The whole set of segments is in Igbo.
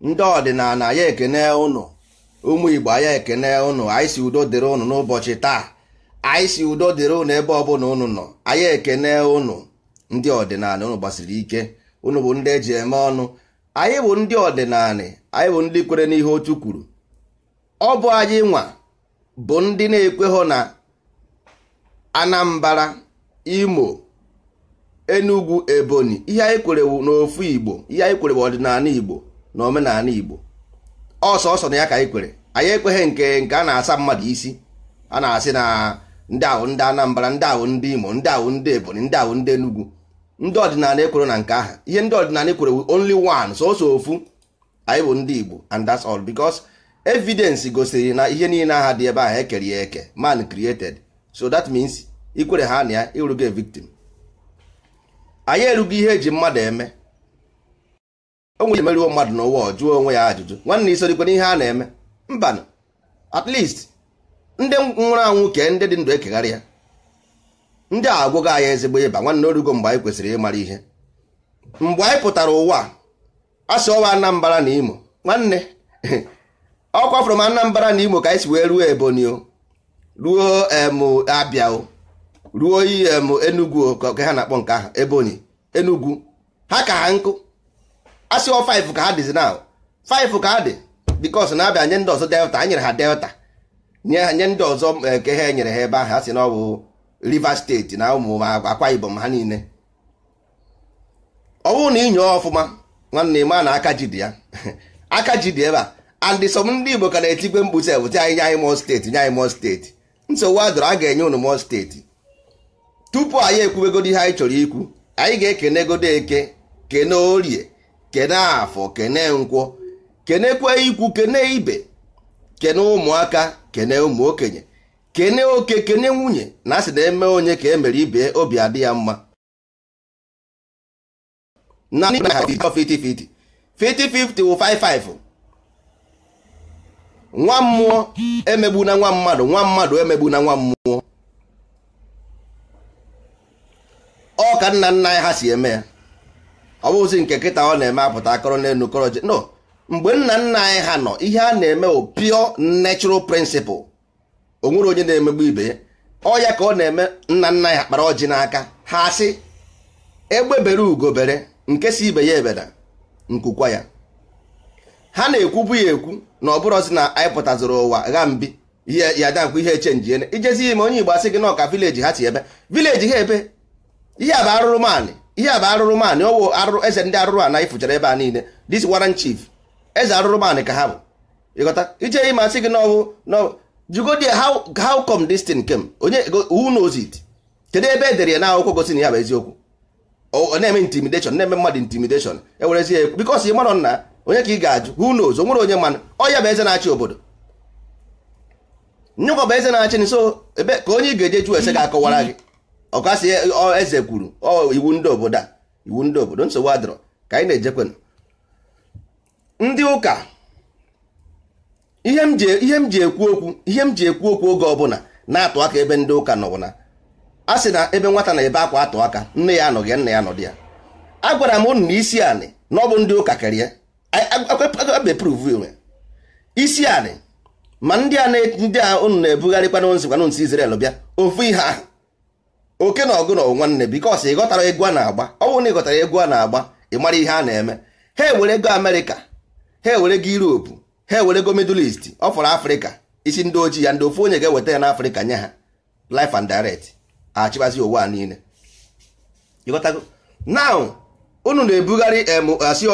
ndị ọdịnala ya ekene ụnụ ụmụ igbo ya ekene ụnụ anyị si udo dịrị ụnụ n'ụbọchị taa anyị si udo dịrị ụnụ ebe ọbụla ụnụ nọ anya ekene ụnụ ndị ọdịnala ụnụ gbasiri ike ụnụ bụ ndị eji eme ọnụ anyị bụ ndị ọdịnala anyị bụ ndị kwere n'ihe otu kwuru ọ bụ anyị nwa bụ ndị na-ekweghọ na anambra imo enugu ebonyi ihe anyị kwere n'ofu igbo ihe anyị kwerewu ọdịnala igbo na omenala igbo ọsọ ọsọ na ya ka anyị kwere anyị ekweghị nke nke a na-asa mmadụ isi a na-asị na ndị ahụ ndị Anambara ndị ahụ ndị imo ndị ahụ ndị ebonyi ndị ahụ ndị enugu ndị ọdịnala ekwere na nke aha ihe ndị ọdịnala ekwerewu only one sọsọ ofu anyị bụ ndị igbo and that's all because evidence gosiri na ihe niile aha dị ebe ahụ ekere ya eke man created so that means ikwere ha na ya ịrụgo victim anyị erugo ihe eji mmadụ eme onwe nwere emeruo mmadụ n'ụwa jụọ onwe ya ajụjụ nwanne isorikwe n'ihe a na-eme mba at least ndị nwụrụ anwụ ke ndị dị ndụ ekegharị ya ndị a agwụgo anyị ezigbo ịba nwanne orugo mgbe anyị kwesịrị ịmara ihe mgbe anyị pụtara ụwa a sị ọwa Anambra na Imo nwanne ọ kwafụrụ m Anambra na Imo ka anyị si wee ruo Ebonyi o ruo abịa ruo em enugwu ka ha na-akpọ nke ahụ ebonyi enugwu ha ka ha nkụ asị ọ 5 ka ha dịzi na 5 ka ha dị bikos na-abịa nye ndị ọzọ delta a nyere ha delta nye ndị ọzọ eh, nke ha enyere ha ebe ahụ asị na ọ bụ rivers steeti na ụmụ akwa ibom ha niile ọ bụrụ na inyo ọfụma nwanne ma na aka ji dị ya aka ji dị ebe a and some ndị igbo ka na-etigwe mkpu sef nye anyị mọ steeti nye anyị mọ steeti nsogbu adọrọ a ga-enye unu mmụọ steeti tupu anyị ekwubegodi ihe anyị chọrọ ikwu anyị ga-ekenegodo eke kene orie kene afọ kene nkwọ kenekwe ikwu kene ibe kene ụmụaka kene ụmụ okenye kene oke kene nwunye na asị na eme onye ka emere ibe obi adị ya mma na 50-50 50-50 wụ 5-5 nwa mmụọ emegbu na nwa mmadụ nwa mmadụ emegbu na nwa mmụọ ọ ka nna nna anyị ha si eme ya ọ bụghịzi nke kịta ọ na-eme apụta akọrọ n'elu no mgbe nna nna anyị ha nọ ihe a na-eme o pure prịnsịpụ principle o nwere onye na-emegbu ibe ọ ya ka ọ na-eme nna nna anyị ha kpara ọjị n'aka ha asị egbe bere ugo bere nke si ibe ya ebeda nkukwa ya ha na-ekwubu ya ekwu na ọ bụrọzi na anyị pụtazụrụ ụwa gha mbi ya dankwa ihe echenjiene ijezi ime onye Igbo asị gị nọka vileji ha si ebe vileji ha ebe ihe bụ arụrụ ihe a bụ arụrụ maanị ọwụ arụrụ eze ndị arụrụ ana ifuchara ebe a niile dis waran chief eze arụrụ manị ka ha bụ ịghọta ije ime asị gị n'ọwụ n'ọwụ jugodi how how come this thing came onye who knows it kedu ebe e dere ya na akwụkwọ gosi na ya bụ eziokwu ọ na-eme intimidation na-eme mmadụ intimidation ewerezi ya ekwu ị marọ nna onye ka ị ga-ajụ who nos o nwere onye mana ọya bụ eze na-achị obodo nyụkọ bụ eze na-achị nso ebe ka onye ị ga-eje ju ese ga-akọwara gị ọkasị eze kwuru iwu ndị obodo a iwu ndị obodo nsogbu adịrọ ka anyị na-ejekwe ndị ụka e, ihe m ji ekwu okwu ihe m ji ekwu okwu oge ọbụla na-atụ aka ebe ndị ụka nọ na a sị na ebe nwata na-ebe akwa atụ aka nne ya anọghị nna ya nọ dị ya agwara m unu na isi anị na ọ bụ ndị ụka kerie abeprove isi anị ma ndị a ndị a unu na-ebugharị kwanụnsị kwanụnsị Israel bịa ofu ihe ahụ oke na ọgụ na nwanne bikos ị ghọtara egwu a na-agba ọ bụrụ na ịghọtara egwu a na-agba ị mara ihe a na-eme ha ewere ego Amerịka ha ewere go Europe ha ewere go Middle East ọ fọrọ Afrịka isi ndị ojii ya ndị ofu onye ga-eweta ya n'Afrịka nye ha life and direct achịbazi ah, ụwa niile ịghọtago now unu na-ebugharị asị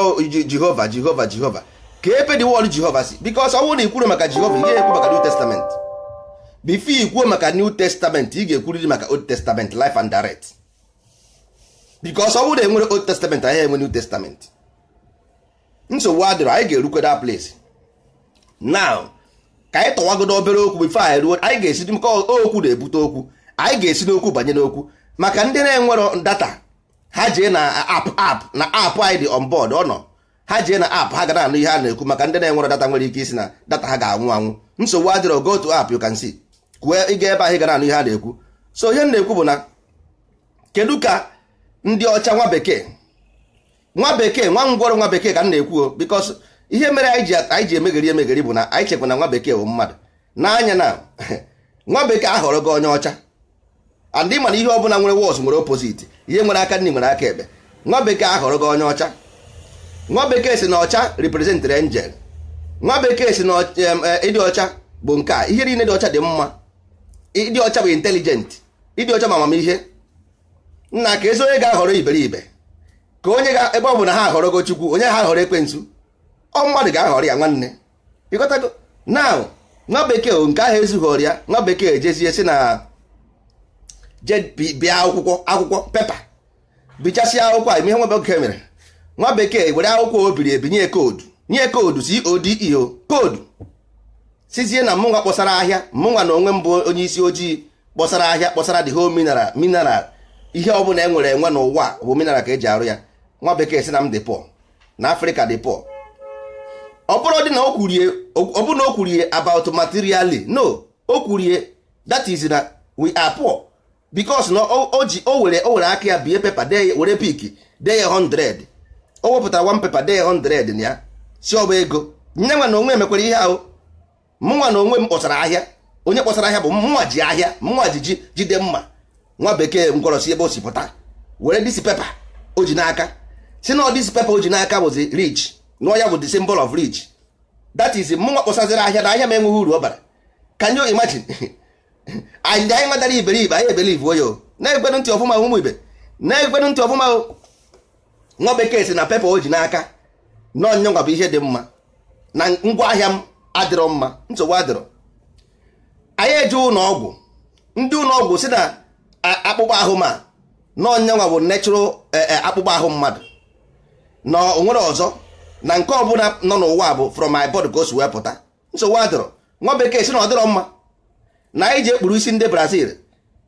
jehova jehova jehova ka ebe dị wọl jehova si bikos ọ na ikwuru maka jehova ihe ekwu maka new testament bifo ikwuo maka new testament ị ga-ekwuriri maka old testament life and direct bikos ọ na enwere old testament anyị enwe new testament nsogbu adịrọ anyị ga-erukweda place now ka anyị obere okwu bifo anyị ruo anyị ga-esi okwu na-ebute okwu anyị ga-esi n'okwu banye n'okwu maka ndị na-enwero data ha jee na app app na app anyị dị on board ọ nọ ha jee na app ha ga na-anụ ihe a na-ekwu maka ndị na-enwere data nwere ike isi na data ha ga-anwụ anwụ nsogbu adịrọ go to app you can see kwuo ịga ebe ahụ ga na-anụ ihe a na-ekwu so ihe m na-ekwu bụ na kedu ka ndị ọcha nwa bekee nwa bekee nwa ngwọrọ nwa bekee ka m na-ekwu because ihe mere anyị ji emegheri emegheri bụ na anyị chekwa na nwa bekee bụ mmadụ n'anya na nwa bekee ahọrọ gị onye ọcha and ị ma na ihe ọbụla nwere wọs nwere opositi ihe nwere aka nri nwere aka ebe nwa bekee ahọrọ gị onye ọcha nwa bekee si na ọcha reprezentrị angel nwa bekee si na eh, ịdị ọcha bụ nke a ihe niile dị ọcha dị mma ịdị ọcha bụ intelijent ịdị ọcha ma amamihe nna ka ezi onye ga-ahọrọ iberibe ka onye ga ebe ọ bụ na ha gị chukwu onye ha ahọrọ ekwensu ọ mmadụ ga-ahọrọ ya nwanne ịkọtago na nwa bekee nke ahụ ezughị ọrịa nwa bekee ejezie si na je bịa akwụkwọ akwụkwọ pepa bichasịa akwụkwọ a ihe nwa bekee mere nwa bekee were akwụkwọ o biri ebi nye koodu nye koodu e codeo koodu sizie na mụnwa kpọsara ahịa mụnwa na onwe mbụ onye isi ojii kpọsara ahịa kpọsara the whole mineral mineral ihe ọbụla e nwere enwe n'ụwa bụ mineral ka eji arụ ya nwa bekee si na m dị pọ na afrịka dị pọ ọ bụrụ na o kwurie about materially no o kwurie that is na we are poor because na o ji o were o were aka ya bie pepa dee were pik dee ya 100 o wepụtara wan pepa dee ya 100 na ya si ọba ego nye nwa na onwe mekwara ihe ahụ mụnwa na onwe m kpọsara ahịa onye kpọsara ahịa bụ mụnwa ji ahịa mụnwa ji ji jide mma nwa bekee si ebe o si pụta were disi pepa o ji n'aka si na disi pepa o ji n'aka bụzi rich na ya bụ the symbol of rich that is mụnwa kpọsaziri ahịa na ahịa m enweghị uru ọ bara can you imagine anyị anyị madara iberibe anyị ebelibe oyo na-ekwenu ntị ọfụma ụmụ ibe na-ekwenu ntị ọfụma nwa bekee si na pepa o ji n'aka nọnyọnwa bụ ihe dị mma na ahịa m adịrọ mma nsogbu adịrọ anyị eji ụlọ ọgwụ ndị ụlọ ọgwụ si na akpụkpọ ahụ ma nọnyọnwa bụ natural eh, eh, akpụkpọ ahụ mmadụ na onwere ọzọ na nke ọbụla nọ n'ụwa bụ from my body ka wee pụta nsogbu adịrọ nwa bekee si na ọ dịrọ mma na anyị ji ekpuru isi ndị brazil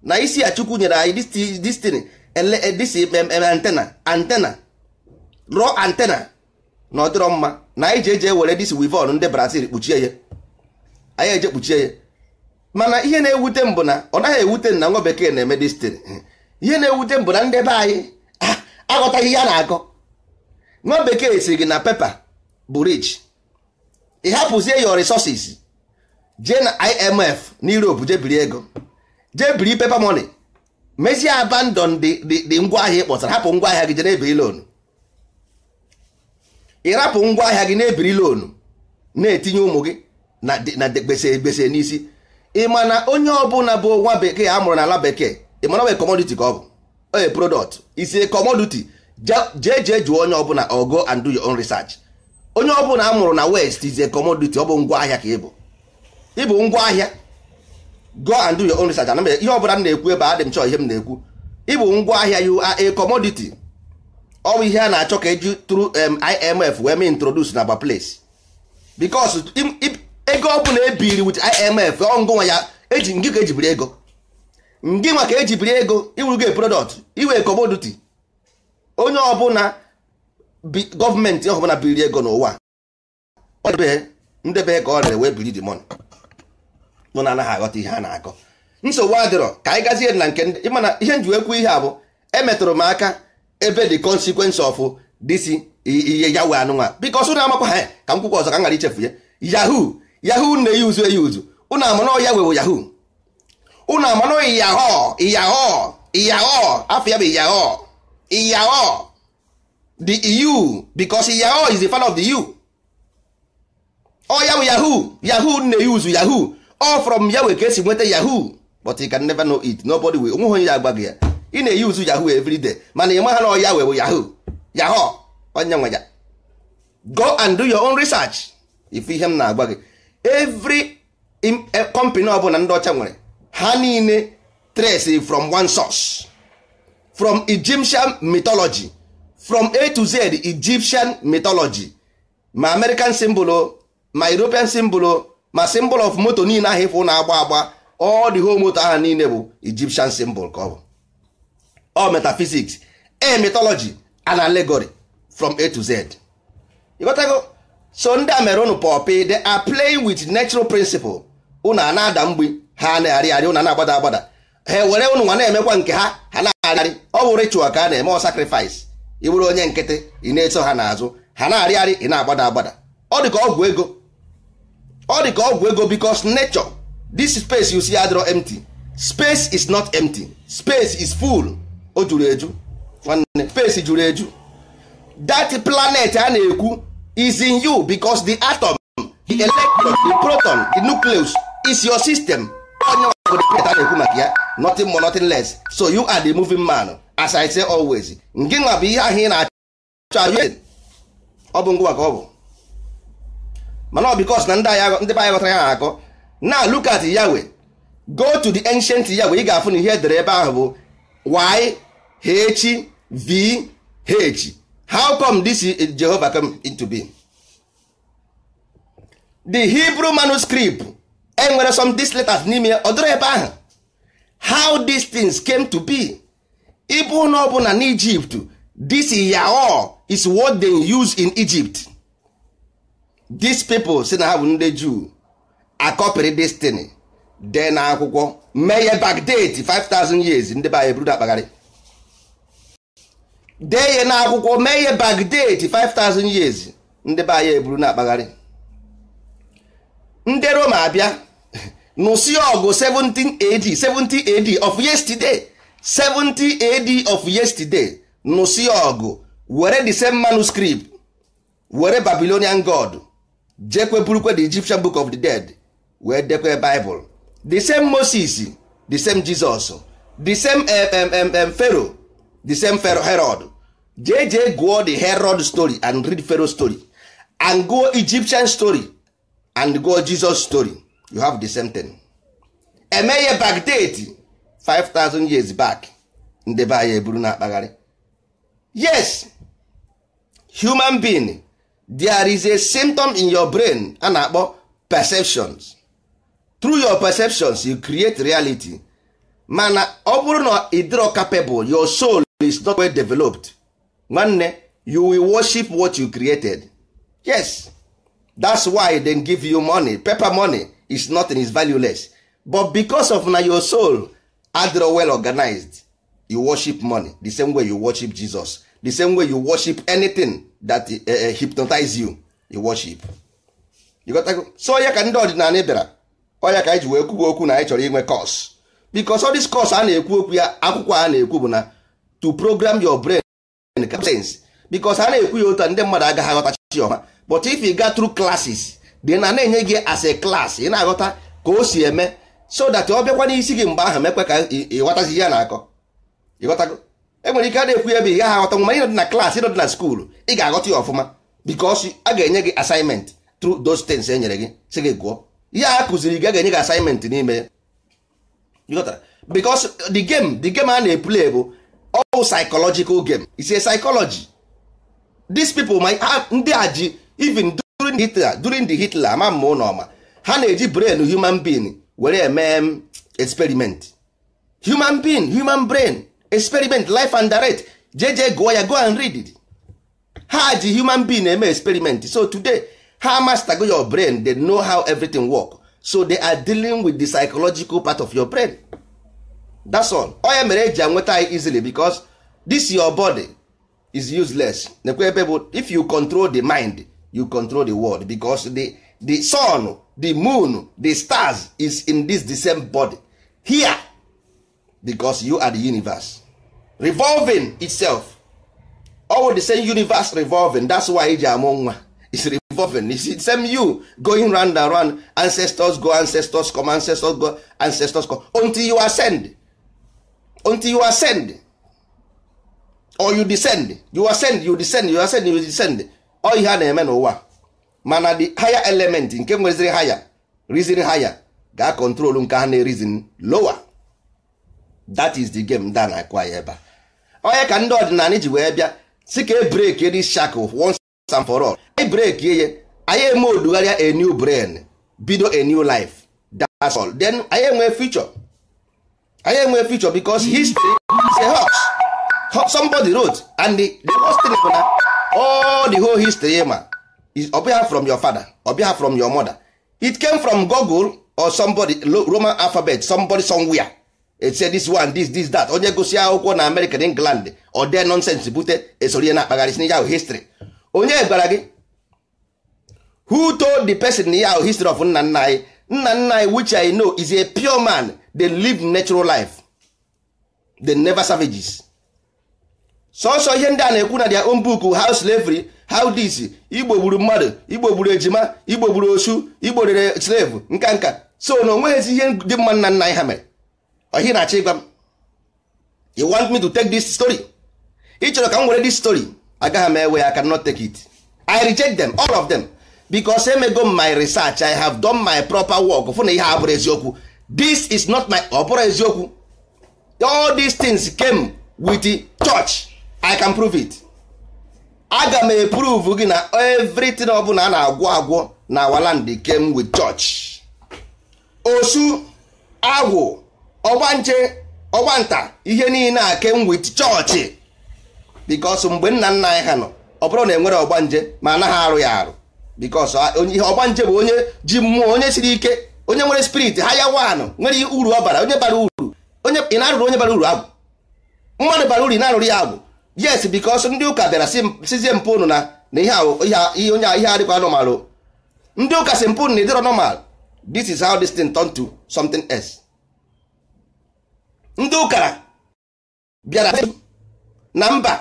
na isi a chukwu nyere anyị destiny eh, eh, antena antena rụọ antena na ọdịrọ mma na anyị ji eji ewere disi wivon ndị brazil kpuchie ya anyị eje kpuchie ya mana ihe na-ewute m bụ na ọ naghị ewute na nwa bekee na-eme destiny ihe na-ewute m bụ na ndị be anyị ah, aghọtaghị ihe a na-akọ nwa bekee si gị na pepa bụ rich ị hapụzie your resources jee na imf na europe jee biri ego jee biri pepa money mezie abandon dị ngwa ahịa ị kpọtara hapụ ngwa ahịa gị jee na-ebiri loonu ịrapụ ngwa ahịa gị na-ebiri loonu na-etinye ụmụ gị na gbese gbese n'isi ị ma na onye ọbụla bụ nwa bekee a mụrụ n'ala bekee ị mana ọ bụ commodity ka ọ bụ oye product isi commodity jee jee jụọ onye ọbụla ogo and do your own research onye ọbụla a mụrụ na west is a commodity ọ bụ ngwa ahịa ka ị bụ ịbụ ngwa ahịa go and do your own research ana ihe ọbụla m na-ekwu ebe adị m chọọ ihe m na-ekwu ịbụ ngwa ahịa you are a commodity ọ bụ ihe a na-achọ ka eji through IMF wee mee introduce na place because ego bụla ebiri with IMF ọngụnwa ya eji ngị ka ejibiri ego ngị nwa ka ejibiri ego product iwe commodity onye ọbụla gọọmenti ọbụla biri ego n'ụwa ndebe ka ọ rere wee biri the money mụ na anaghị aghọta ihe a na-akọ nsogbu adịrọ ka anyị gazie na nke ndị mana ihe ekwu ihe a bụ emetụrụ m aka ebe the consequence of this ihe ya wee anụnwa biko ọsụ na amakwa ha ka m kwụkwa ọzọ ka m ghara ichefu ya yahoo yahoo na-eyi uzu eyi uzu ụnụ amana ya wewo yahoo ụnụ amana yahoo yahoo yahoo afọ ya bụ yahoo yahoo the eu because yahoo is the fan of the eu ọ ya bụ yahoo yahoo na-eyi uzu yahoo all from ya wee ka esi nweta yahoo but you can never know it nobody will onweghị onye ya agba gị ya ị na uzu yahoo every mana ị maha na ọya wee bụ yahoo yahoo onye nwe ya go and do your own research if ihe m na agwa gị every eh, company ọbụla ndị ọcha nwere ha niile trace from one source from Egyptian mythology from A to Z Egyptian mythology ma American symbol oh. ma European symbol oh. ma symbol of moto niile ahụ ịfụ na-agba agba ọ dị ho moto ahụ niile bụ Egyptian symbol ka ọ bụ ọ metaphysics e mythology and allegory from A to Z ịghọtago so ndị a mere unu pọpị they a play with natural principle unu a na-ada mgbe ha na-arị arị unu a na-agbada agbada ha were unu nwa na-emekwa nke ha ha na-arịarị ọ bụ ritual ka a na-eme ọ sacrifice ị onye nkịtị ị na-eso ha n'azụ ha na-arịarị ị na-agbada agbada ọ dị ka ọgwụ ego ọ dị ka ọgwụ ego because nature this space you see adịrọ empty space is not empty space is full o juru eju nwanne space juru eju that planet a na-ekwu is in you because the atom the electron the proton the nucleus is your system onye ọgụ the planet a na-ekwu maka ya nothing more nothing less so you are the moving man as I say always Nke nwa bụ ihe ahụ ị na-achọ ọ bụ ngwa ka ọ bụ mana ọ bikos na ndị anyị ghọtara ya akọ na look at Yahweh go to the ancient Yahweh ị ga-afụ na ihe edere ebe ahụ bụ y h v h how come this Jehovah come into being the Hebrew manuscript enwere some these letters n'ime ya ọ dịrị ebe ahụ how these things came to be ịbụ na ọ bụ na n'Egypt this Yahweh is what they use in Egypt these people si na ha bụ ndị Jew akọpịrị destiny dee na akwụkwọ mee ya backdate 5000 years ndị be anyị akpagharị dee ya na akwụkwọ mee ya 5000 years ndị be anyị eburu na akpagharị ndị Roma abịa nụsi ọgụ 17 AD 17 AD of yesterday 17 AD of yesterday nụsi ọgụ were the same manuscript were Babylonian god jekwe burukwe the Egyptian book of the dead wee dekwe Bible the same Moses the same Jesus the same Pharaoh the same Herod jee jee gụọ the Herod story and read Pharaoh story and go Egyptian story and go Jesus story you have the same thing emeghe Baghdad 5000 years back ndị be eburu na akpagharị yes human being there is a symptom in your brain a na-akpọ perceptions through your perceptions you create reality mana ọ bụrụ na ịdịrọ capable your soul is not well developed nwanne you will worship what you created yes that's why they give you money paper money is nothing is valueless but because of na your soul Adro well organized you worship money the same way you worship Jesus the same way you worship anything that eh, eh, hypnotize you you worship so ya ka ndị ọdịnala bịara onye ka anyị e ji wee kwuba okwu na anyị chọrọ inwe kọs because all this course a ekwu okwu ya akwụkwọ a na-ekwu bụ na to program your brain sense because a na-ekwu ya otu ndị mmadụ agaghị aghọtachi ọma but if you got through classes dị na na-enye gị as a class ị na-aghọta ka o si eme so that ọ bịakwa n'isi gị mgbe ahụ mekwe ka ị ihe na-akọ ịghọtago enwere ike a na-ekwu ya bụ ị gaghị aghọta nwa ịnọdị na klaasị ịnọdị na skuulu ị ga-aghọta ya ọfụma bikos a ga-enye gị asaịmentị tru those things e nyere gị si gị gụọ ihe a kụziri gị a ga-enye gị asaịmentị n'ime ya bikos the game the game a na-epule bụ all psychological game is a psychology dis pipo my ndị a ji even during Hitler during the Hitler ama mma ụlọ ọma ha na-eji brain human being were eme experiment human being human brain experiment life and direct jeje gụọ go and read it ha ji human being eme experiment so today ha go your brain they know how everything work so they are dealing with the psychological part of your brain that's all onye mere eji anweta easily because this your body is useless nekwe ebe if you control the mind you control the world bicos the, the sun the moon the stars is in this the same body here bicos you are the universe revolving itself all the same universe revolving that's why eji amụ nwa is revolving is the same you going round and round ancestors go ancestors come ancestors go ancestors come until you ascend until you ascend or you descend you ascend you descend you ascend you descend all ihe a na-eme n'ụwa mana the higher element nke nweziri higher reason higher ga-control nke ha na-erizin lower that is the game da na ebe a onye ka ndị ọdịnala ji wee bịa si ka e breki dị shakụ once and for all e anyị breki ihe anyị eme odugharịa a new brain bido a new life that's all then anyị enwe future anyị enwe future because history is a hoax somebody wrote and the, the thing bụ na all the whole history ma ọbịa from your father ọbịa from your mother it came from Google or somebody Roman alphabet somebody somewhere etie this one this this that onye gosi akwụkwọ na American England ọ dee nonsense bute esoro ihe na-akpagharị si ahụ history onye gwara gị who told the person ya ahụ history of nna nna anyị nna nna anyị which I know is a pure man they live natural life they never savages sọsọ ihe ndị a na-ekwu na their own book how slavery how this igbo gburu mmadụ igbo gburu ejima igbo gburu osu igbo rere slave nka so na onweghịzi ihe dị mma nna anyị ha mere ihe na-achọ ịgwa m you want me to take this story ị chọrọ ka m were this story agaghị m ewe ya I cannot take it I reject them all of them because emego my research I have done my proper work fụ na ihe abụrụ eziokwu this is not my ọ oh, eziokwu all these things came with the church I can prove it aga m eprove gị na everything ọbụla a na-agwọ agwọ na awaland came with church osu agwụ ọgbanche ọgbanta ihe niile a came with chọọchị because mgbe nna nna anyị ha nọ ọ bụrụ na enwere ọgbanje ma anaghị arụ ya arụ because ihe ọgbanje bụ onye ji mmụọ onye siri ike onye nwere spirit ha ya wanụ nwere uru ọ bara onye bara uru onye ị na-arụrụ onye bara uru agwụ mmadụ bara uru ị na-arụrụ ya agwụ yes bikos ndị ụka bịara sizie mpụ unu na na ihe onye ihe adịkwa ndị ụka si mpụ unu na ịdịrọ normal this is how this thing turn to something else ndị ụkara bịara na mba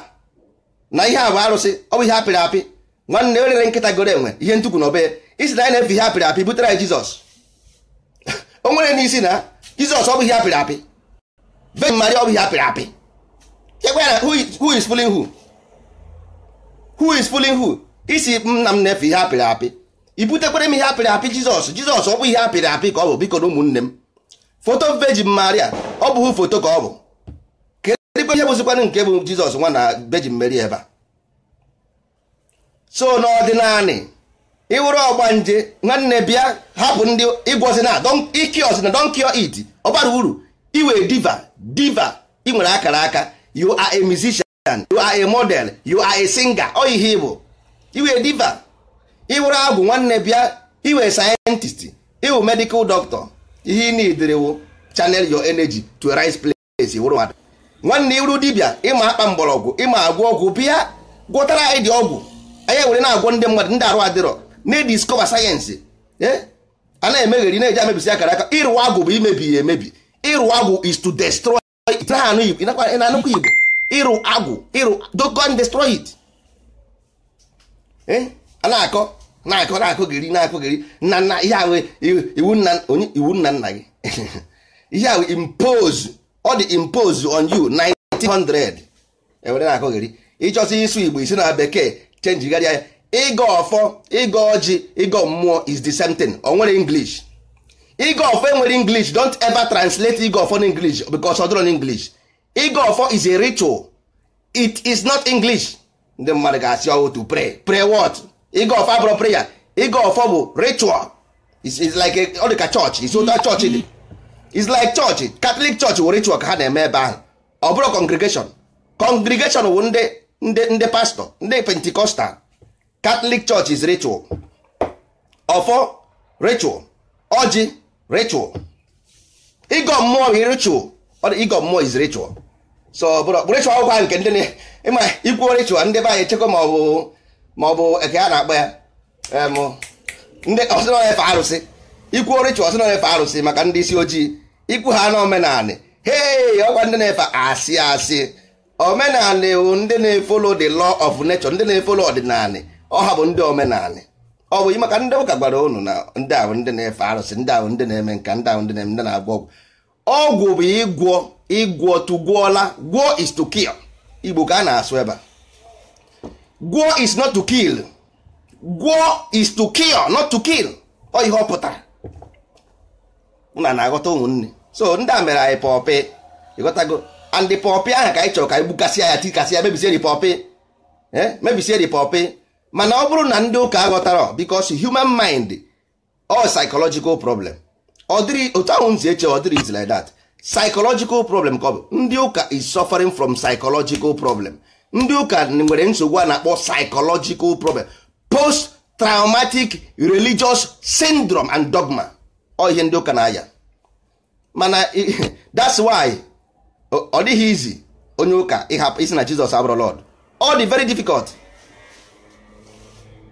na ihe a bụ arụsị ọ bụ ihe apịrị apị nwanne erere nkịta gore enwe ihe ntukwu na obe isi na anyị na-efe ihe apịrị apị butere anyị jizọs o nwere n'isi na jizọs ọ bụ ihe apịrị apị Virgin Mary ọ bụ ihe apịrị apị chekwa ya na who is fooling who who is fooling who isi nna m na-efe ihe apịrị apị i butekwere m ihe apịrị apị jizọs jizọs ọ bụ ihe apịrị apị ka ọ bụ biko na ụmụnne m foto vejin maria ọ bụghị foto ka ọ bụ kedụ ihe bụzikwana nke bụ jizọs nwa na vejin meri ebe a so n'ọdịnanị ịwụrụ ọgbanje nwanne bịa hapụ ndị ịgwọzi na iki ọzi na don kio ọ bara uru iwe diva diva ị nwere akara aka you are a musician you are a model you are a singer ọ ihe ịbụ iwe diva ịwụrụ agwụ nwanne bịa iwe sayentist iwu medical doctor ihe ị na-edere channel your energy to a right place wụrụ mmadụ nwanne iru dibịa ịma akpa mgbọrọgwụ ịma agwọ ọgwụ bịa gwọtara anyị dị ọgwụ anyị were na-agwọ ndị mmadụ ndị arụ adịrọ na-ediskọba eh? sayensị a na-emegheri na-eji amebisi akara aka ịrụ agwụ bụ imebi ya emebi ịrụ agwụ is to destroy it na-anụkwa igbo ịrụ agwụ ịrụ dogon destroy it eh? a na-akọ na-akọ na-akọ na-akọ nna nna ihe ahụ iwu nna onye iwu nna nna gị ihe ahụ impose ọ dị impose on you 1900 ewere na-akọ gịrị ịchọsị ịsụ igbo isi na bekee chenjigharịa ya ịgọ ọfọ ịgọ ọjị ịgọ mmụọ is the same thing o nwere english ịgọ ọfọ enwere english don't ever translate ịgọ ọfọ English because ọ dịrọ n'english ịgọ ọfọ is a ritual it is not english ndị mmadụ ga-asị ọwụ to pray pray what ịga ọfọ abụrụ prayer ịga ọfọ bụ ritual is like ọ dị ka chọọchị isi ụta chọọchị dị is like chọọchị katọlik chọọchị wụ ritual ka ha na-eme ebe ahụ ọ bụrụ congregation congregation wụ ndị ndị ndị pastọ ndị pentikọstal katọlik chọọchị is ritual ọfọ ritual ọjị ritual ịgọ mmụọ ritual ịgọ mmụọ is ritual so bụrụ ritual ọgwụ ahụ nke ndị ịma ikwu ritual ndị be anyị echekwa ma ma ọ bụ eke a na-akpọ ya eh, ndị ọsịnọ efe arụsị ikwu orichi ọsịnọ efe arụsị maka ndị isi ojii ikwu ha na omenanị hei ọkwa ndị na-efe asị asị omenanị bụ ndị na-efolo the law of nature ndị na-efolo ọdịnanị ọha bụ ndị omenanị ọ bụ maka ndị ụka gwara unu na ndị ahụ ndị na-efe arụsị ndị ahụ ndị na-eme nka ndị ahụ ndị na-eme ndị na-agwọ ọgwụ ọgwụ bụ ịgwọ ịgwọ tụgwọla gwọ is to kill igbo ka a na-asụ ebe a gwọ is not to kill gwọ is to kill not to kill ọ ihe ọ pụtara na na-aghọta ụmụnne so ndị a mere anyị pọpị ịghọtago and pọpị ahụ ka anyị chọrọ ka anyị gbukasịa ya tikasị ya mebisie ripọpị eh? mebisie ripọpị mana ọ bụrụ na ndị ụka aghọtara because human mind all psychological problem ọ dịrị otu ahụ nzi eche ọ dịrị is like that psychological problem ka ọ bụ ndị ụka is suffering from psychological problem ndị ụka nwere nsogbu a na-akpọ psychological problem post traumatic religious syndrome and dogma ọ ihe ndị ụka na-aya mana that's why ọ dịghị izi onye ụka ịhapụ isi na Jizọs abụrụ Lord ọ dị very difficult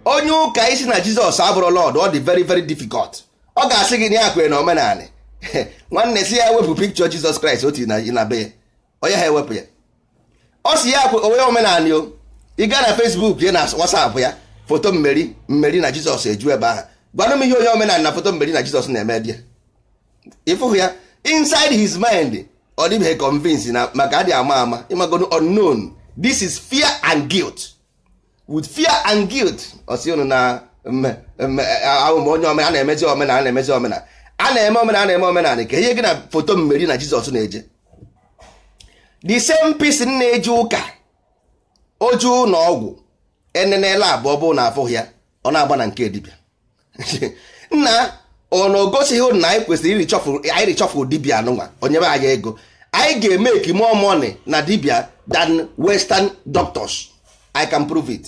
onye ụka isi na Jizọs abụrụ Lord ọ dị very very difficult ọ ga-asị gị na ya na omenanị nwanne si ya wepụ pikchọ Jizọs Kraịst otu na be ya onye ha ewepụ ya ọ si ya akwa onwe omenala o ị gaa na Fesbuk ya na WhatsApp ya foto mmeri mmeri na Jizọs eju ebe ahụ gwanụ m ihe onye omenala na foto mmeri na Jizọs na-eme dị ịfụhụ ya inside his mind ọ dịbeghị convince na maka adị ama ama ịmagodo unknown this is fear and guilt with fear and guilt ọsi unu na ahụmụ onye omenala na-emezi omenala na-emezi omenala a na-eme omenala na-eme omenala ka ihe gị na foto mmeri na Jizọs na-eje the same piece m na-eji ụka oju na ọgwụ enenela abụọ bụ na afụghị ya ọ na-agba na nke dibịa nna ọ na ogosighị na anyị kwesịrị ịrịchọpụ richọfụ dibịa anụnwa onye be anyị ego anyị ga-emeki more money na dibịa dan western doctors i can prove it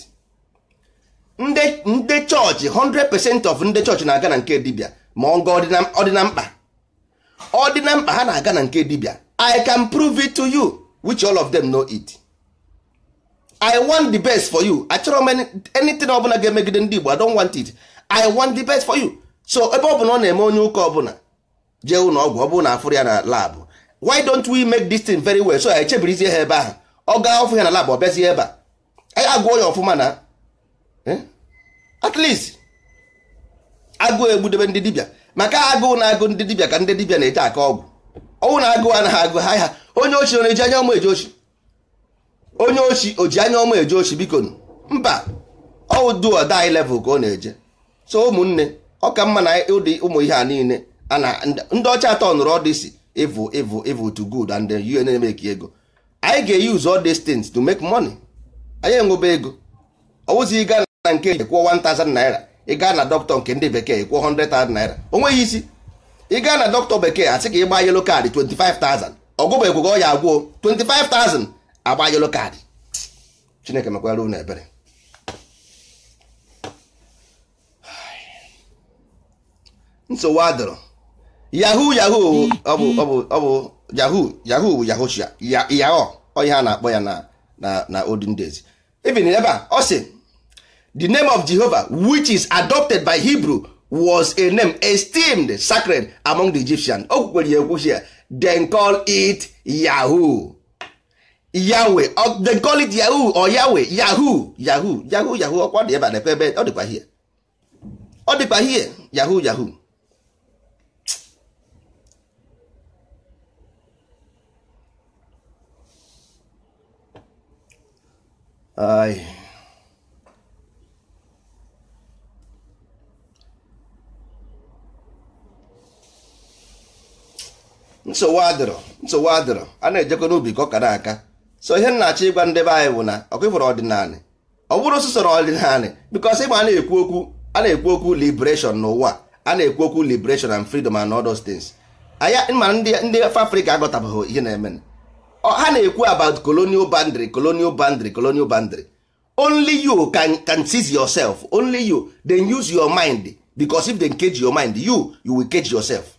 ndị chọọchị 100% of ndị chọọchị na-aga na nke dibịa ma ọ ga ọdịna mkpa ọdịna mkpa ha na-aga na nke dibịa i can prove it to you which all of them know it i want the best for you achọrọ m anything ọbụla ga-emegide ndị Igbo i don't want it i want the best for you so ebe ọ bụla ọ na-eme onye ụka ọbụla jee ụlọ ọgwụ ọ bụrụ na afụrụ ya na lab why don't we make this thing very well so i echebirizie ha ebe ahụ ọ gaa ọfụ ya na lab ọ bịazie ebe a anyị agụọ ya ọfụma na eh? at least agụụ egbudebe ndị dibịa maka agụụ na agụ ndị dibịa ka ndị dibịa na-eche aka ọgwụ ọnwụ na-agụ a agụ ha ya onye ochi ọ na-eji anya ọma eje ochi onye ochi o ji anya ọma eje ochi biko mba ọwụ duo dai level ka ọ na-eje so ụmụnne ọ ka mma na ụdị ụmụ ihe a niile a na ndị ọcha atọ nụrụ ọdịsi evil evil evil to good and then you na-emeki ego anyị ga-use all these things to make money anyị enwebe ego ọwụzi ịga na nke kwụọ 1000 naira ịga na dọkịta nke ndị bekee kwụọ 100,000 naira o nweghị isi ị gaa na dọkịta bekee asị ka ị gbaa yelo kaadị 25,000 ọgwụgwọ ọ ya agwụọ 25,000 agba yelo kaadị chineke mekwara unu ebere nsogbu adọrọ yahoo yahoo ọ bụ ọ bụ yahu bụ yahoo yahoo onye ha na-akpọ ya na na na olden days even ebe a ọ sị the name of Jehovah which is adopted by Hebrew was a name esteemed sacred among the Egyptians o kwukwere ya ekwuchi ya call it Yahoo Yahweh or yahu call it Yahoo Yahoo Yahoo Yahoo Yahoo ọkwa dị ebe Yahoo Yahoo nsogbu adịrọ nsogbu adịrọ a na-ejekwa n'ubi ka ọ kara aka so ihe nna-achọ ịgwa ndebe anyị bụ na ọkụ ịfọrọ ọdịnala ọ bụrụ sụsọrọ ọdịnala bikọs ịgba a na-ekwu okwu a na-ekwu okwu liberation n'ụwa a na-ekwu okwu liberation and freedom and all those things anya ma ndị afrịka agọtabeghị ihe na-eme ha na-ekwu about colonial boundary colonial boundary colonial boundary only you can, can seize yourself only you then use your mind because if they cage your mind you you will cage yourself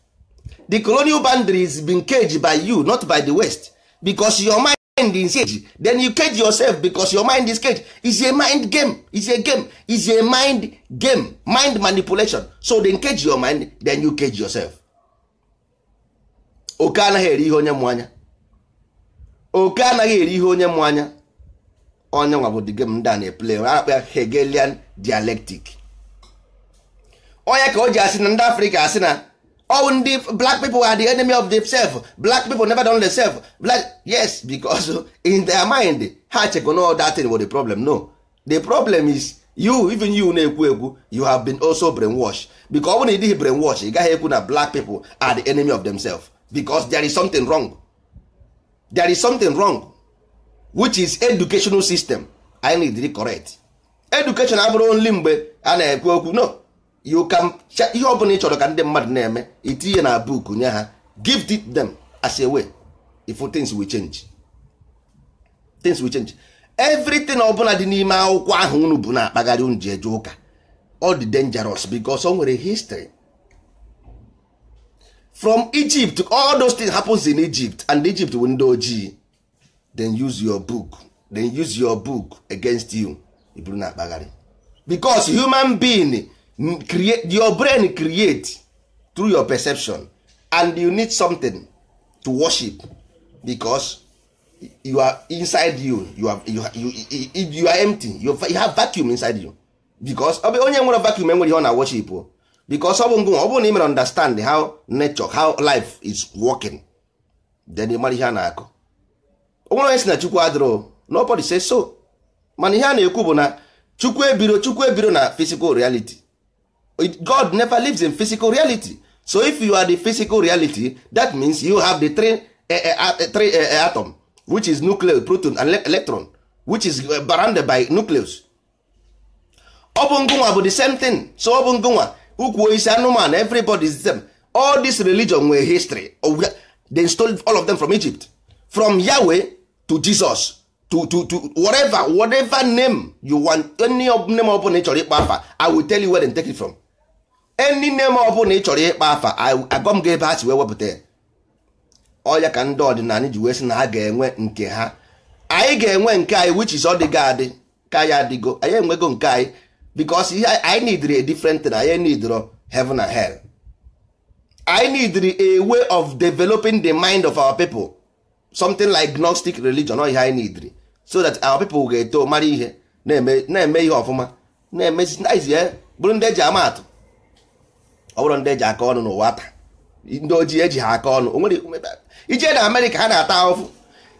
the colonial boundaries been caged by you not by the west because your mind is caged then you cage yourself because your mind is caged is a mind game is a game is a mind game mind manipulation so then cage your mind then you cage yourself oke anaghị eri ihe onye mụ anya oke anaghị eri ihe onye mụ anya onye nwa bụ the game ndị a na-eple akpa Hegelian dialectic onye ka o ji asị na ndị Afrịka asị na all ndị black people are the enemy of themselves black people never don themselves black yes because in their mind ha chekwa no that thing was the problem no the problem is you even you na-ekwu ekwu you have been also brainwashed because ọ bụrụ na brainwash ị gaghị ekwu na black people are the enemy of themselves because there is something wrong there is something wrong which is educational system I need to correct education abụrụ only mgbe a na-ekwu okwu no you can ihe ọ bụla ị chọrọ ka ndị mmadụ na-eme itinye na book nye ha give it them as a way if things will change things will change everything ọbụla dị n'ime akwụkwọ ahụ unu bụ na-akpagharị unu ji eje ụka ọ dangerous because o nwere history from Egypt all those things happens in Egypt and Egypt bụ ndị ojii then use your book then use your book against you iburu na-akpagharị because human being create your brain create through your perception and you need something to worship because you are inside you you are, you, you, you, you are empty you, you have vacuum inside you because onye nwere vacuum enwere ihe ọ na worship because ọ bụ ngụ ọ bụrụ na ị understand how nature how life is working then ị mara ihe a na-akọ onwere onye si na chukwu adịrọ nobody say so mana ihe a na-ekwu bụ na chukwu ebiro chukwu ebiro na physical reality God never lives in physical reality so if you are the physical reality that means you have the three, uh, uh, three uh, atom which is nucleus proton and electron which is bounded by nucleus ọ bụ ngụnwa bụ the same thing so ọ ukwu isi anụmanụ everybody is the same all this religion nwere history oh, they stole all of them from Egypt from Yahweh to Jesus to to to whatever whatever name you want any name ọ ị chọrọ ịkpọ afa I will tell you where they take it from enyi nne m na ị chọrọ ịkpa afa agọ m ga ebe ha si wee wepụta ya ọya ka ndị ọdịnala ji wee sị na ha ga-enwe nke ha anyị ga-enwe nke anyị which is ọdịgo adị ka ya adịgo anyị enwego nke anyị because ihe anyị n'idiri a different thing anyị neediro heaven and hell anyị n'idiri a way of developing the mind of our people something like gnostic religion ọ ihe anyị n'idiri so that our people ga-eto mara ihe na-eme ihe ọfụma na-emezi eh, bụrụ ndị eji ama atụ ọ bụrụ ndị eji aka ọnụ n'ụwa ata ndị ojii eji ha aka ọnụ onwere ije na amerịka ha na-ata ahụfụ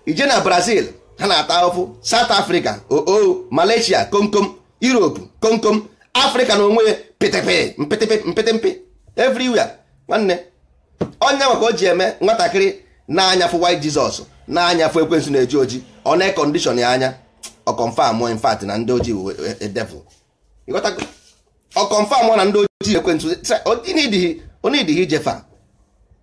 ije na brazil ha na-ata ahụfụ south africa oo oh, oh, malaysia komkom europe komkom afrịka na onwe pịtịpị mpịtịpị mpịtịmpị everywhere nwanne onye maka o ji eme nwatakịrị na-anyafụ white jesus na-anyafụ ekwensụ na-eji oji ọ na-ekọndishọn ya anya ọ confirm in na ndị ojii e, e, devil ọ confam na ndị ojii ekwentị onidighi ijefa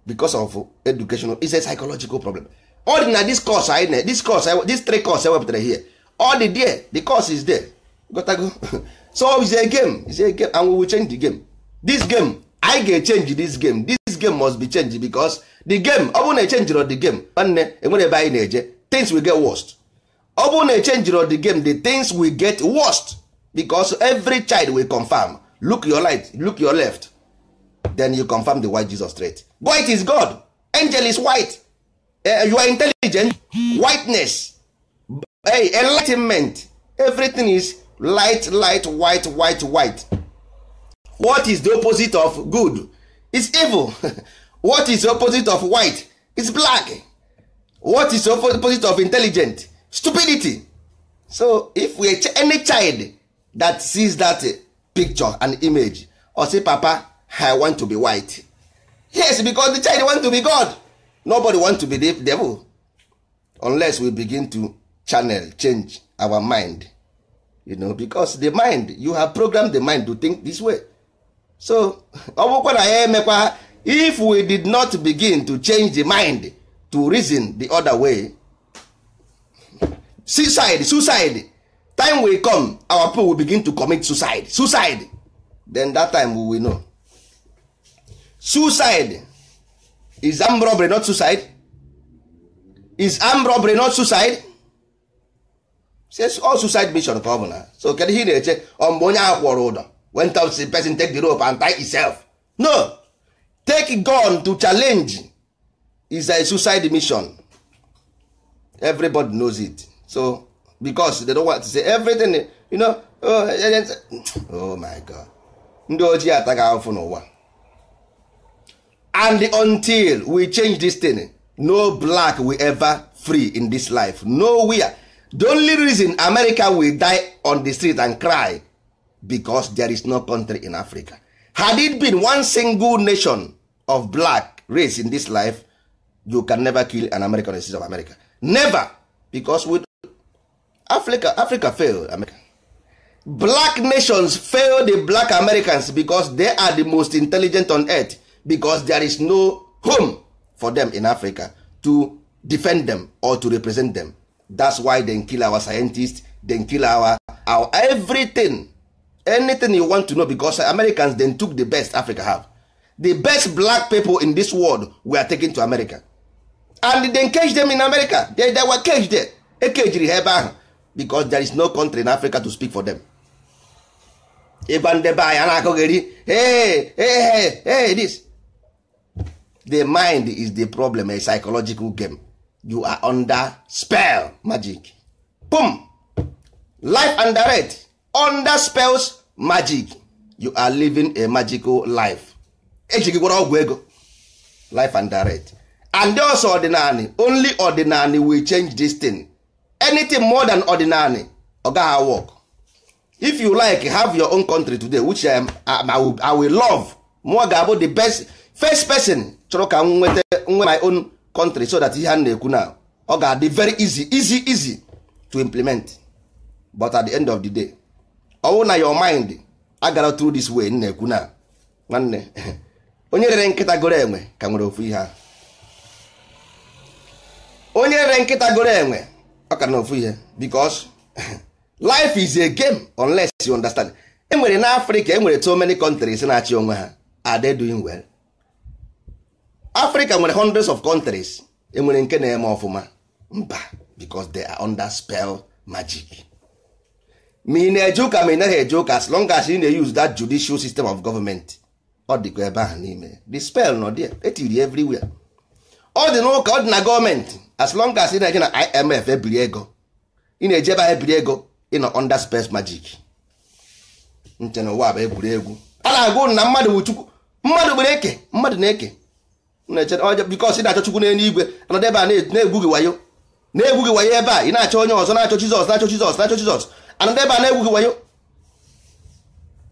because of education is a psychological problem all na this course anyị na this course this three course ewepụtara here all dị there the course is there gotago so is a game is a game and we will change the game this game anyị ga change this game this game must be changed because the game ọ bụrụ na echenjirọ the game nwanne enwere ebe anyị na-eje things will get worst ọ bụrụ na echenjirọ the game the things will get worst because every child will confirm look your right look your left then you confirm the white jesus straight white is god angel is white uh, you are intelligent whiteness hey, enlightenment everything is light light white white white what is the opposite of good is evil what is the opposite of white is black what is the opposite of intelligent stupidity so if we any child that sees that eh, picture and image or say papa i want to be white yes because the child want to be god nobody want to be the devil unless we begin to channel change our mind you know because the mind you have programmed the mind to think this way so ọ bụkwa na ya emekwa if we did not begin to change the mind to reason the other way suicide suicide time wey come our people will begin to commit suicide suicide then that time we will know suicide is armed robbery not suicide is armed robbery not suicide says all suicide mission ka ọbụla. na so kedu ihe ị na-eche ọ mgbe onye ahụ kwọrọ ụdọ when the person take the rope and tie himself no take gun to challenge is a suicide mission everybody knows it so because they don't want to say everything you know oh eh, eh, eh, Oh my god ndị ojii ataghị ahụfụ n'ụwa and until we change this thing no black will ever free in this life nowhere the only reason america will die on the street and cry because there is no country in africa had it been one single nation of black race in this life you can never kill an american citizen of america never because we Africa Africa fail America. Black nations fail the black Americans because they are the most intelligent on earth because there is no home for them in Africa to defend them or to represent them. That's why they kill our scientists, they kill our our everything anything you want to know because Americans then took the best Africa have. The best black people in this world were taken to America and they cage them in America. They, they were caged there. E kejiri ha ebe ahụ because there is no country in Africa to speak for them. ịgwa ndebe anyị na-akụgheri this the mind is the problem a psychological game you are under spell magic boom life under it under spells magic you are living a magical life ejigigwara ọgwụ ego life under it. and also ordinary only ordinary will change this thing anything more than ordinary ọ gaghị work if you like have your own country today which I, am, I will love more ga-abụ the best first person chọrọ ka m nweta nwe my own country so that ihe a na-ekwu na ọ ga-adị very easy easy easy to implement but at the end of the day ọ na your mind agara through this way na-ekwu na nwanne onye rere nkịta goro enwe ka nwere ofu ihe a onye rere nkịta goro enwe ọ ka na ofu ihe because life is a game unless you understand enwere na afrịka enwere so many countries na-achị onwe ha are they doing well Africa nwere hundreds of countries enwere nke na-eme ọfụma mba because they are under spell magic ma ị na-eje ụka ma ị naghị eje ụka as long as you na-use that judicial system of government ọ dịkwa ebe ahụ n'ime the spell nọ there etiri everywhere ọ dị n'ụka ọ dị na gọọmenti as long as ị na-eje na IMF ebiri ego ị na-eje ebe ebiri ego ị nọ under space magic nche na ụwa bụ egwuregwu ala na-agụ na mmadụ bụ chukwu mmadụ gbere eke mmadụ na-eke because ị na-achọ chukwu n'elu igwe anọdụ ebe a na-egwu gị wayo na-egwu gị wayo ebe a ị na-achọ onye ọzọ na-achọ Jizọs na-achọ Jizọs na-achọ Jizọs anọdụ ebe a na-egwu gị wayo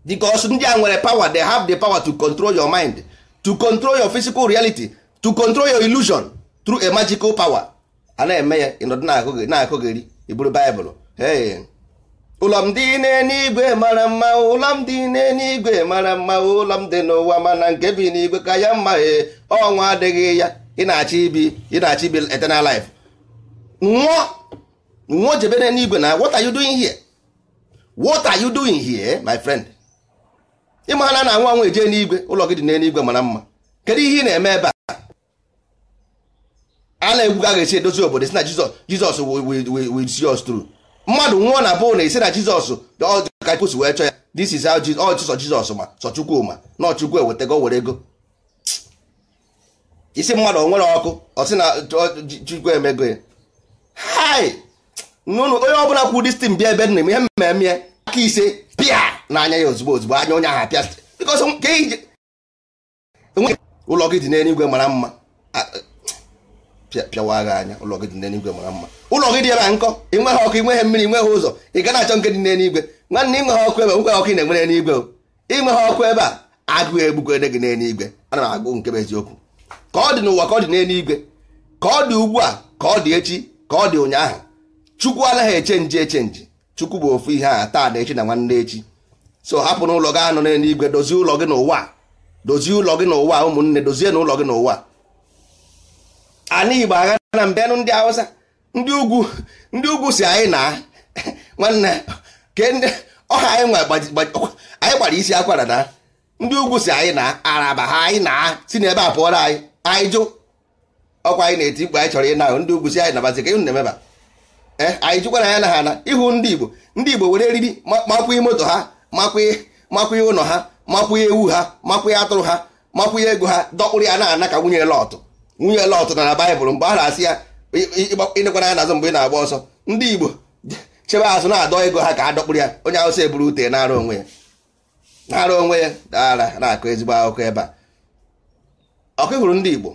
because ndị a nwere power they have the power to control your mind to control your physical reality to control your illusion through a magical power a na-eme ya ịnọdụ na-akụgheri iburu baịbụl ụlọ m dị n'eluigwe mara mma ụlọ m dị n'eluigwe mara mma ụlọ m dị n'ụwa mana nke bi n'igwe ka ya mma ee eh, ọnwa adịghị ya ị na-achọ ibi ị na-achọ ibi eternal life nwụọ nwụọ jebe n'eluigwe na what are you doing here what are you doing here my friend ịma na na anwụ anwụ eje n'igwe ụlọ gị dị n'eluigwe mara mma kedu ihe ị na-eme ebe a a na-egwuga ga-esi edozi obodo si na jizọs jizọs will see us tru mmadụ nwụọ na bụ na esi na jizọs ka pos wee chọọ ya this is how sọ jizọs ma sọ chukwu ma na ọchukwu ewetago were ego isi mmadụ nwere ọkụ ọsị na chukwu emego ya hai nụnụ onye ọbụla kwụ distin bịa ebe nna m ihe mmemme aka ise pịa n'anya ya ozugbo ozugbo anya onye ahụ pịa bikọs ụlọ gị dị n'eluigwe mara mma pịawa agha anya ụlọ gị dị n'eluigwe mara mma ụlọ gị dị ebe a nkọ ị nweghị ọkụ ị nweghị mmiri ị nweghị ụzọ ị achọ nke dị n'eluigwe nwanne ịnweghị ọkụ ebe nweghị ọkụ ị na-enwe n'eluigwe ị nweghị ọkụ ebe a agụụ ede gị n'eluigwe ana m agụ nke bụ eziokwu ka ọ dị n'ụwa ka ọ dị n'eluigwe ka ọ dị ugbu a ka ọ dị echi ka ọ dị ụnyaahụ chukwu anaghị echenji echenji chukwu bụ ofu ihe a taa na echi na nwanne echi so hapụ n'ụlọ gị anọ n'eluigwe dozie ụlọ gị n'ụwa dozie ụlọ gị n'ụwa ụmụnne dozie n'ụlọ gị n'ụwa ana igbo agha na mbịanụ ndị hausa ndị ugwu ndị ugwu si anyị na nwanne ọha anyị gbara isi akwara na ndị ugwu si anyị na araba ha anyị na si n'ebe a pụọra anyị anyị jụ ọkwa anyị na-eti mkpu anyị chọrọ ịna ndị ugwu si anyị nabazi ka ịhụ na-emeba eh, anyị jụkwara ya na ha na ịhụ ndị igbo ndị igbo were eriri makwughị moto ha makwughị ụlọ ha makwughị ewu ha makwughị atụrụ ha makwughị ego ha dọkpụrụ ya na ana ka nwunye lọtụ nwunye Lọt na baịbụl mgbe a na-asị ya ịnekwana ya n'azụ mgbe ị na-agba ọsọ ndị Igbo chebe azụ na-adọ ego ha ka dọkpụrụ ya onye Hausa buru ute na-arụ onwe ya na onwe ya daara na-akụ ezigbo akụkọ ebe a ọkụhụrụ ndị Igbo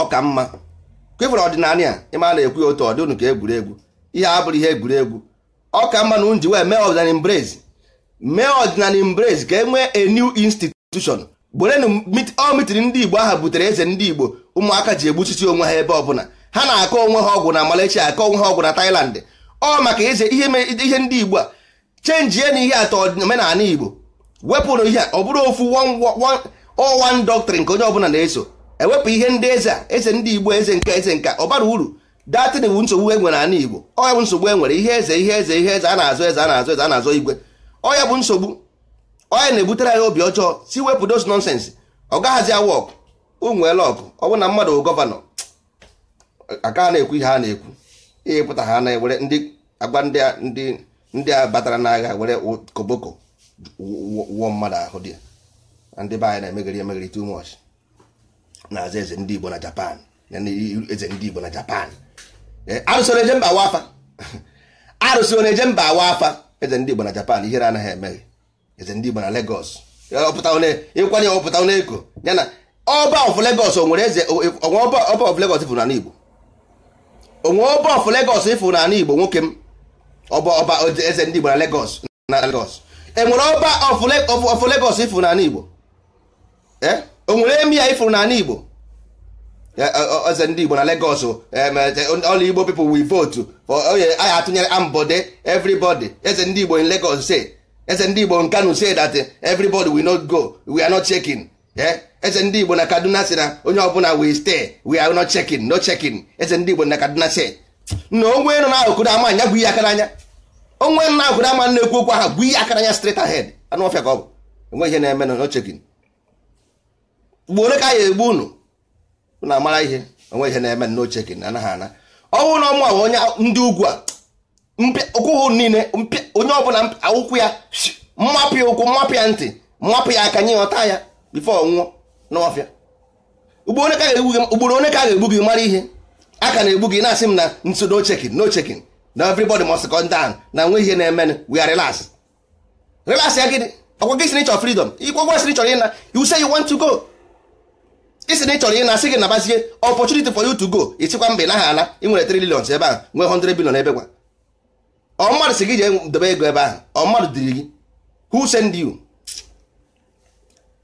ọ mma kwefere ọdịnala a ịma na-ekwu ya otu ọ dị unu ka egwuregwu ihe abụrụ ihe egwuregwu ọ mma na unji wee mee ọdịnala embrace mee ọdịnala embrace ka e nwee a new institution gwerenu ọ ndị igbo aha butere eze ndị igbo ụmụaka ji egbuchiti onwe ha ebe ọbụla ha na-akọ onwe ha ọgwụ na Malaysia akọ onwe ha ọgwụ na Thailand ọ maka eze ihe ndị igbo a chenjie na ihe atọ omenala igbo wepụrụ ihe ọ bụrụ ofu one doctrine nke onye ọbụla na-eso ewepụ ihe ndị eze a eze ndị igbo eze nka eze nka ọbara uru datin bụ nsogbu e nwere ala igbo ọ bụ nsogbu e nwere ihe eze ihe eze ihe eze a na-azụ eze a na-azụ eze a na-azụ igwe ọ ya bụ nsogbu onye na-ebutere anyị obi ọjọọ si wepụ those nonsense ọ gaghazi awọk ụmụele ọkụ ọ bụ na mmadụ gọvanọ aka na-ekwu ihe a na-ekwu ịpụta ha na were ndị agba ndị a ndị a batara n'agha were koboko wụọ mmadụ ahụ dị ndị be anyị na-emegharị emegharị too much na aza eze ndị Igbo na Japan na eze ndị Igbo na Japan eh, arụsị na-eje mba awa afa eze ndị Igbo na Japan ihere anaghị emeghe E, e e eze ndị Igbo na Lagos ịkwanye ọpụta onye eko ya na ọba of onwere eze onwe ọba of Lagos ifụ n'ala Igbo onwe ọba of Lagos ifụ na Lagos na enwere ọba of Lagos ifụ Igbo onwere Igbo eze ndị na Lagos all Igbo oh anyị atụnyere eze ndị Igbo in legos eze ndị igbo nkanu say that eh, everybody will not go we are not checking eze eh? ndị igbo na kaduna si na onye ọbụla we stay we are not checking no checking eze ndị igbo na kaduna si na onwe nọ n'akụkụ ama anya gwu ihe aka n'anya onwe nọ n'akụkụ ama na-ekwu okwu ahụ gwu ihe aka anya straight ahead anụ ọfịa ka ọ bụ enwe ihe na-eme no checking mgbe ole ka anyị egbu unu na amara ihe onwe ihe na-eme no checking anaghị ana ọ na ọmụ onye ndị ugwu a ụkwụ niile onye ọbụla ụkwụ ya mmapụ ya ụkwụ mmapụ ya ntị mmapụ ya aka nye ọta ya bifo nwụọ n'ọfịa ugboro one ka a ga-egbu gị mara ihe a ka na-egbu gị na-asị m na nso no chekin no chekin na everybody must come down na nwe ihe na-emenụ we are relax relax ya gịnị ọkwa gị si na ịchọ freedom ikwe si na ịchọrọ ịna you say you want to go isi na ịchọrọ ịna sị gị na nabazie opportunity for you to go ịchịkwa mba ị naghị ala ị nwere 3 billion ebe a nwee 100 billion ebe gwa ọ mmadụ si gị jee ego ebe ahụ ọ mmadụ diri gị who send you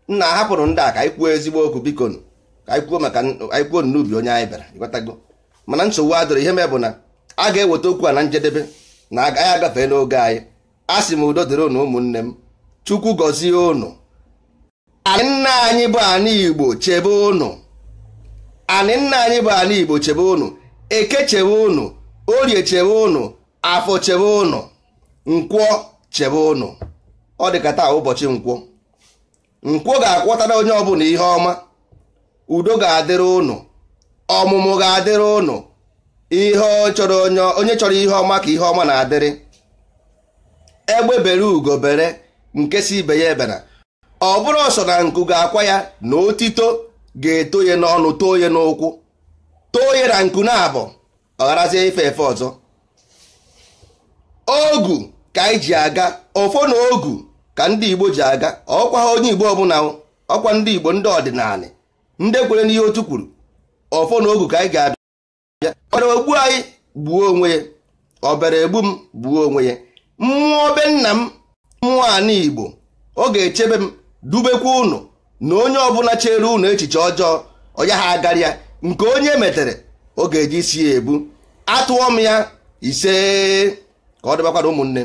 nna hapụrụ ndị a ka anyị kwuo ezigbo okwu biko ka anyị kwuo maka anyị kwuo n'ubi onye anyị bịara ịghọtago mana nsogbu adịrị ihe mee bụ na a ga-eweta okwu a na njedebe na anyị agafee n'oge anyị a sị m udo dịrị unu ụmụnne m chukwu gọzie unu anị nna anyị bụ ana igbo chebe ụnụ anị nna anyị bụ ana igbo chebe unu eke chebe unu orie chebe unu afọ chebe ụnụ nkwọ chebe ụnụ ọ dịka taa ụbọchị nkwọ nkwọ ga-akwọtara onye ọbụla ihe ọma udo ga-adịrị ụnụ ọmụmụ ga-adịrị ụnụ ihe chọrọ onye chọrọ ihe ọma ka ihe ọma na-adịrị egbe bere ugo bere nke si ibe ya ebena ọ bụrụ ọsọ na nku ga-akwa ya na otito ga-eto ya n'ọnụ too ya n'ụkwụ too ya na nku na abụ ọ gharazie ife efe ọzọ ogu ka anyị ji aga ọfọ na ogu ka ndị igbo ji aga ọkwa ha onye igbo ọbụla ọkwa ndị igbo ndị ọdịnala ndị kwere n'ihe otu kwuru ọfọ na ogu ka anyị ga-abịa ọbara ogbu anyị gbuo onwe ya ọbara egbu m gbuo onwe ya mmụọ be nna m mmụọ ana igbo ọ ga-echebe m dubekwa ụnụ na onye ọbụla chere ụnụ echiche ọjọọ ọya ha agarịa nke onye metere ọ ga-eji si ya ebu atụọ m ya ise ka ọ dịbakwa ụmụnne